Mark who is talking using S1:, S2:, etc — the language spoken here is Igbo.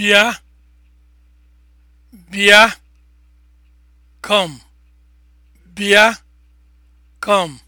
S1: bia come